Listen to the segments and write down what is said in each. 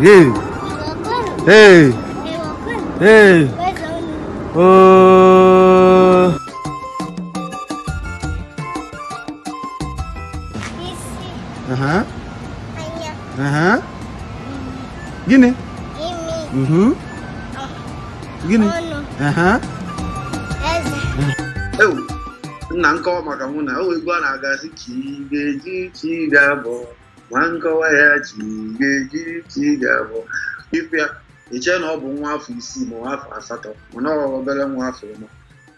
예이 예이 예이 어... 아하 아하 gini gini mhm gini aha ewu nna nke ọma ka mụ na o igwe a na-aga si ka ị ga-eji ka ị ga-abụ ma nkọwa ya ji ihe ejiri ị ga-abụ ikwu ya na ọ bụ nwa afọ isii ma nwa afọ asatọ mana ọ obere nwa afọ ụma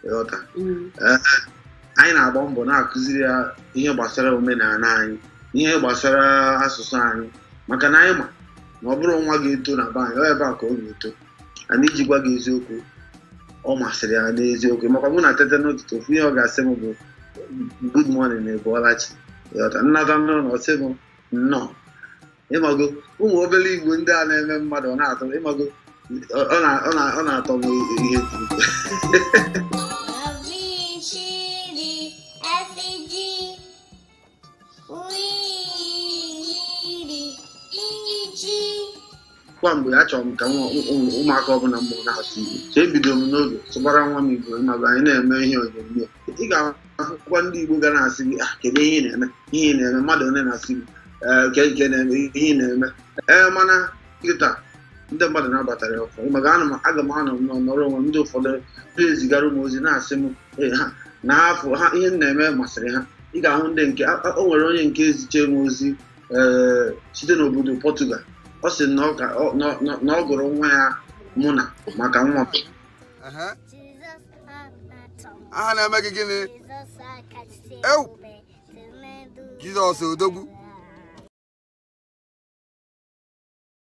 ịghọta mm. eh, anyị na-agba mbọ na-akụziri ya ihe gbasara omenala anyị ihe gbasara asụsụ anyị maka na anyị ma na ọ bụrụ nwa ga-eto na be anyị ọ ebe a ka ọ ga-eto ana iji gwa gị eziokwu ọ masịrị ya n'eziokwu makwa mụ na tete n'ụtụtụ ofu ihe ọ ga-asị m bụ good morning na ebuolachi ịghọta nnata nụrụ na ọ sị nnọọ ịmago ụmụ obere igbo ndị a na-eme mmadụ ọ na-atọ ịmago ọ na-atọ m ihe kwa mgbe chọrọ m ka ụmụaka ọbụla mbụ na-atụ igbo so ebidoro m n'oge tụbara nwa m igbo ịmago anyị na-eme ihe onyonyo ị ga-ahụkwa ndị igbo ga na-asị gị ah kedu ihe ị na-eme ihe ị na-eme mmadụ one na-asị gị na-eme ihe na-eme ee mana nkịta ndị mmadụ na-abatara ya ụfọdụ maka anụ aga m anọ n'ọnọrọ onwe ndị ụfọdụ ndị ezigara ụmụ ozi na-asị m na e, afọ ha ihe m na-eme masịrị ha ị ga-ahụ ndị nke o nwere onye nke eziche m ozi e, site n'obodo Pọtugal ọ sị na ọ gụrụ nwa ya mụ na maka nwa aha na-eme gị gịnị Jizọs odogwu